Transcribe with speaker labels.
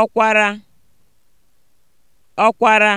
Speaker 1: ọkwara ọkwara